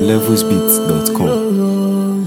levelsbeat.com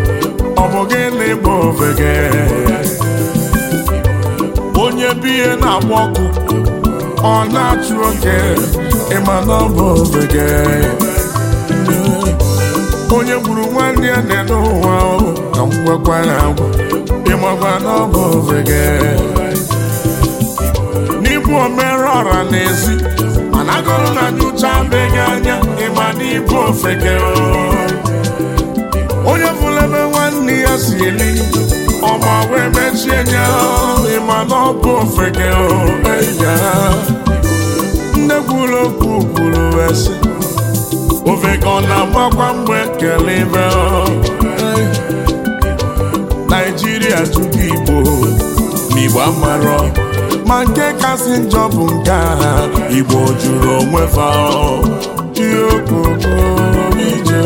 ọ bụ onye bihe na-agba ọkụ ọ na-achụ oke ịma na ọ bụ ofeke onye gburu nwanne ya na n'ụwa ka m gwakwa ya agwa na ọ bụ ofeke n'ịbụ omere ọra n'ezi mana agụrụ na anya ịma na onye n'ihe ya si eri ọma wee mechie nya ma na ọ bụ ofeke ya nne kwuru okwu kwuru esi ofeke ọ na-agbakwa mgbe kele ibe naijiria tupu igbo n'igbo amarọ ma nke kasị njọ bụ nke a igbo jụrụ onwe fa ihe okoko ije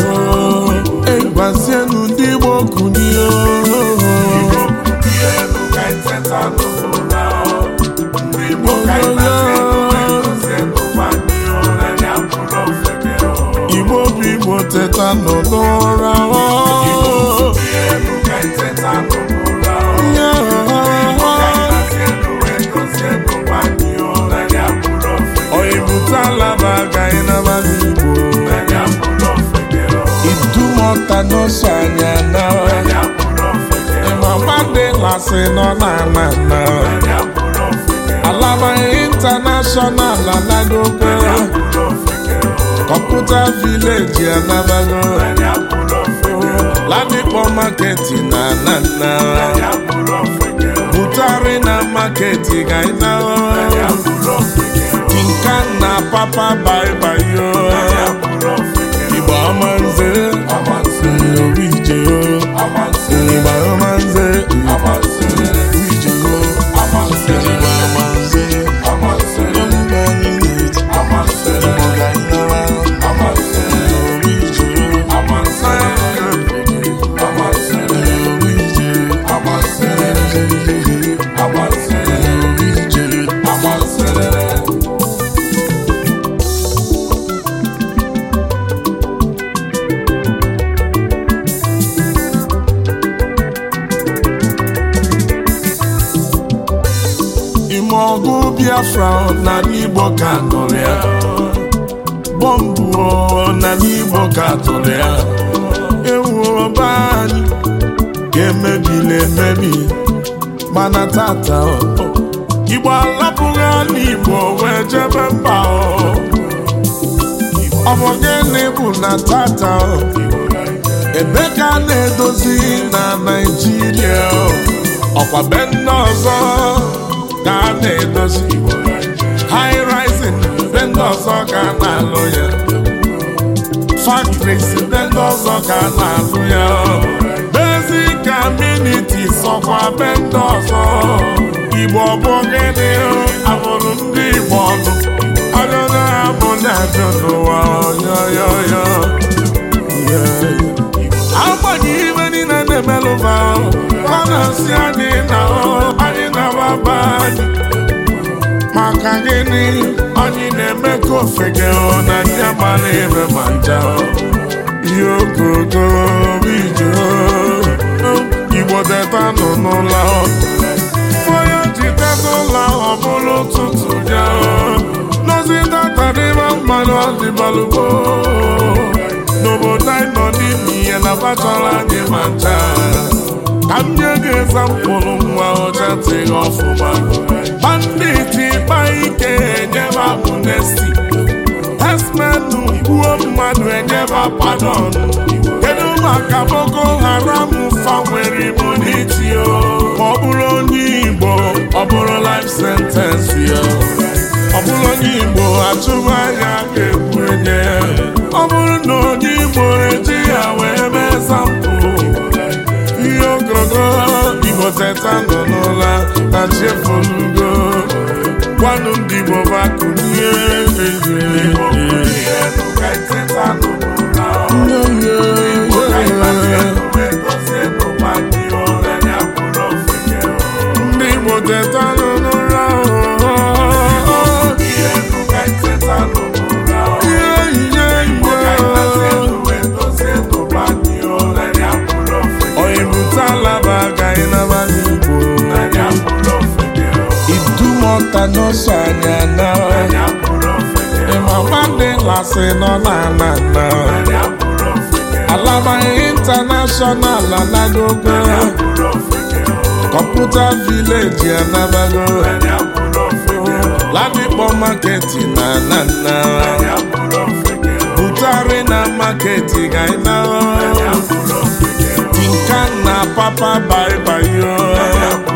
egwazienu okwu n'ihe asị nọ n'ala na alaba intanashọnal alagogo kọmputa vileji alabago ladipo maketi na anana butari na maketi gaina tinka na papa baibayo igba ọma nze igba ọma Biafra n'ala Igbo ka tụrụ ya bọmbụ n'ala Igbo ka tụrụ ya ewu ọba anyị ga-emebili emebi mana tata Igbo alapụghị ala Igbo wee jebe mba ọ bụ gịnị bụ na tata ebe ka a na-edozi na Naịjirịa ọkwa be nne ọzọ na-edozi high rising ndị ọzọ ka ya factories be ndị ọzọ ka na-alụ ya basic sọkwa be ndị ọzọ igbo bụ gịnị abụrụ ndị igbo ọnụ bụ na-abịa n'ụwa ọ gịnị anyị na-eme ka ofege ọ na ndị agbala ebe ma nja ihe ogogo ijo igbo teta nọ n'ụlọ onye ji teta ụlọ ọ bụrụ ụtụtụ ya nozi tatadịba mmanụ ọdịbalụgbo n'obodo anyị nọ n'ime ihe na bachara anyị ma ncha ka m nye gị mkpụrụ nwa ọcha tịghị ọfụma ịkpa ike enyeba amnesti esmenu igbuo mmadụ enyeba padon kedu maka Boko Haram anụ ndị Igbo bụ asị nọ n'ala nna alaba intanashọnal anagogo kọmputa vileji anabago ladikpọ maketi na nna, butari na maketi gaina tinka na papa baibayo